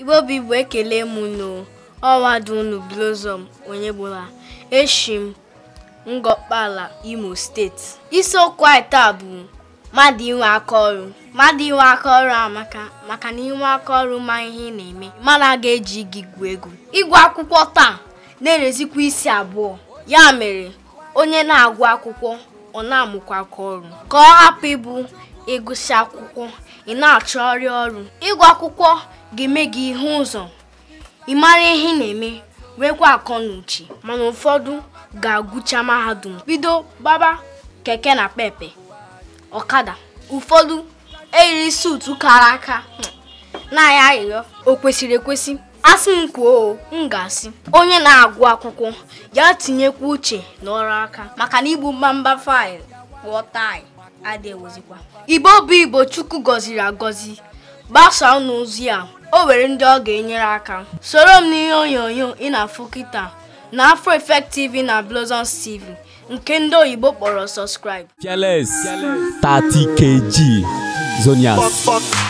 Igbo bụ Igbo ekele m noo ọnwa dị unu Blossom Onyegbula eshi m Ngọkpala Imo steeti isiokwu anyị taa bụ mmadụ inwe aka ọrụ mmadụ inwe aka ọrụ amaka maka na inwe aka ọrụ ma ihe ị na-eme mmadụ a ga-eji gị gwuo egwu ịgụ akwụkwọ taa na-erezikwa isi abụọ ya mere onye na-agụ akwụkwọ ọ na-amụkwa aka ọrụ ka ọ hapụ ịbụ ịgụsị akwụkwọ ị na-achọgharị ọrụ ịgụ akwụkwọ ga-eme gị ihu ụzọ ị mara ihe ị na-eme nwekwa akọ na uche mana ụfọdụ ga-agụcha mahadum bido baba keke na pepe ọkada ụfọdụ eyiri suutu kara aka hmm, na ya arịrịọ o kwesịrị ekwesị asị m kwuo m ga-asị onye na-agụ akwụkwọ ya tinyekwa uche n'ọrụ aka maka na igbu mbamba faịlụ kpụọ taị adịghịzikwa igbo bụ igbo chukwu gọziri agọzi gbasaa unu ozi a o were ndị ọ ga-enyere aka soro m n'ihe onyonyo ị na-afụ kịta na Afro Effect na Blossoms TV nke ndị oyibo kpọrọ subscribe. Fearless 30kg Zonias